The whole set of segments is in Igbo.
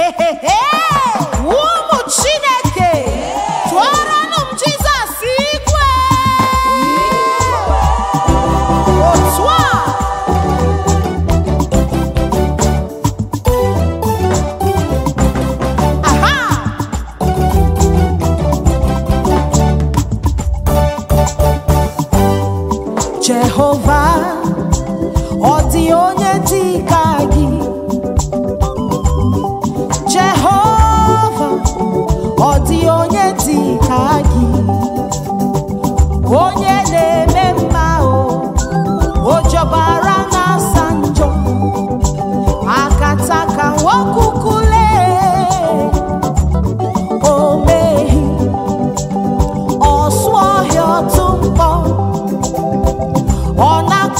hey, hey, hey.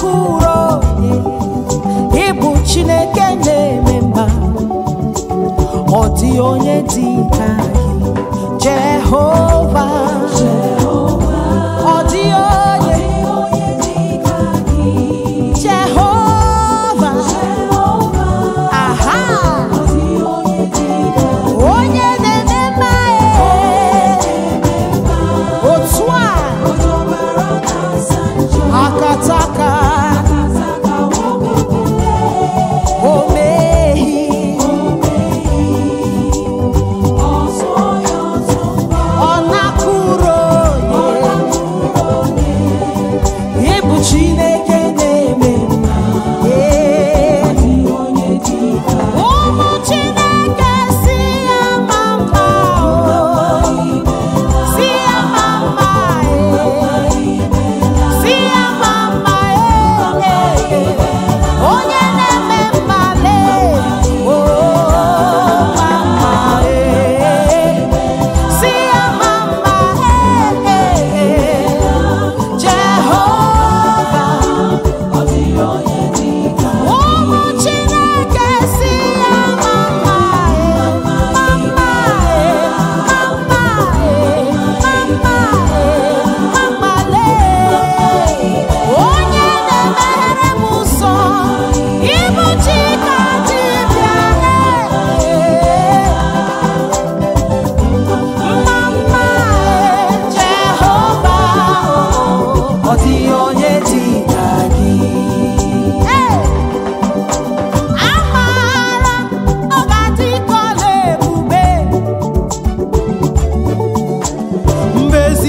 oke onye ịbụ chineke na-eme mba ọ dị onye dị ka gị jehova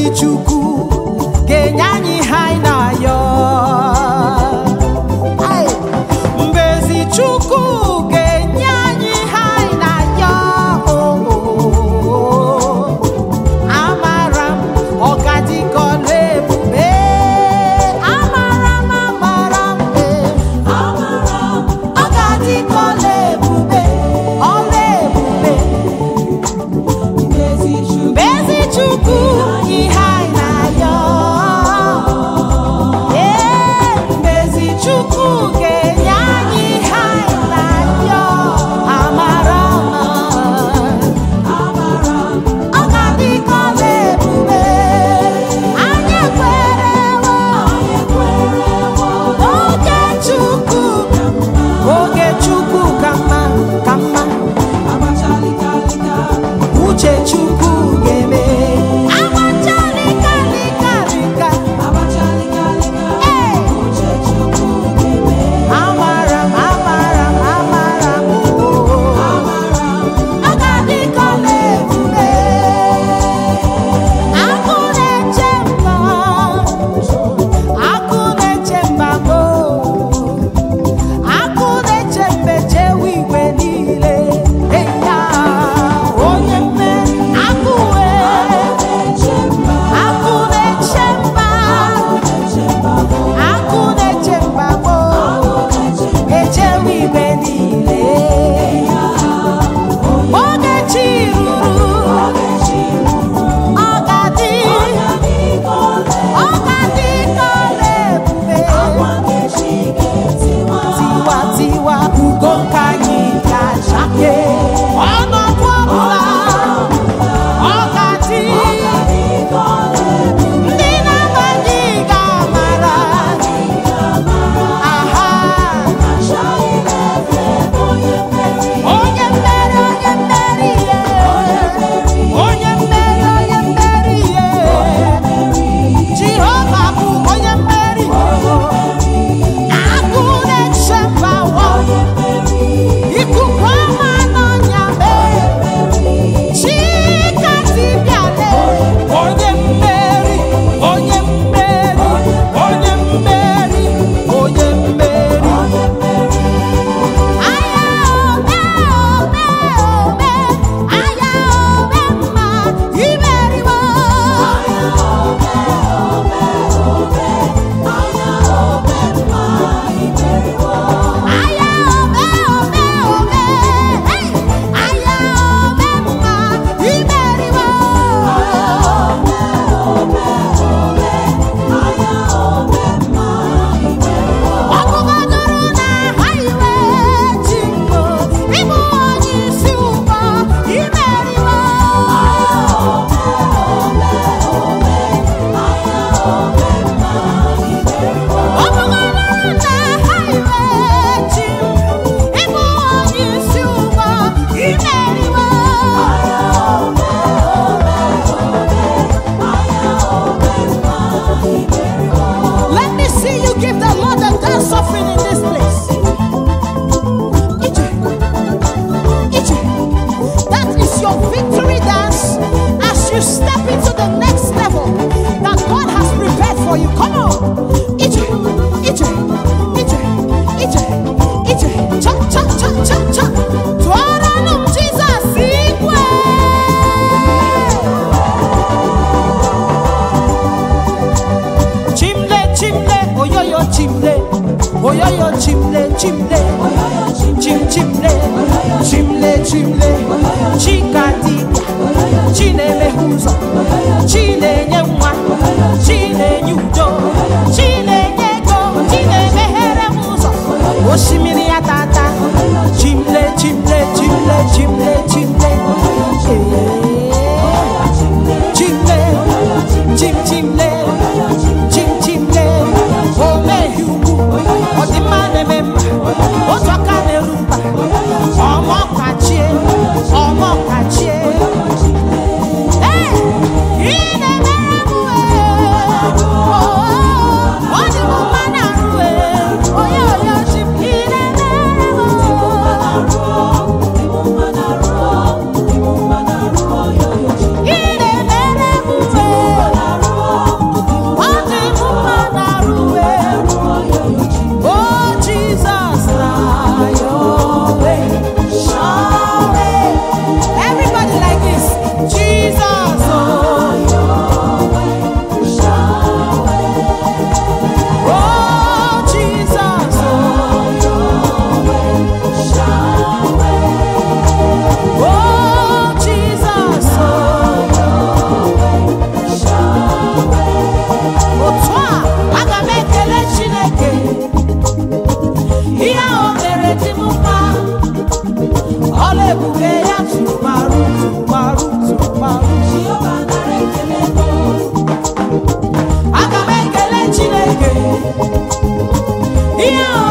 Chukwu ga-enye anyị eche m ibe chi na-enye nwa chi ihe